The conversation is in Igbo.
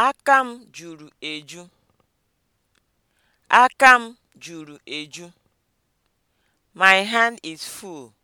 Aka m juru eju. Aka m juru eju. My hand is full.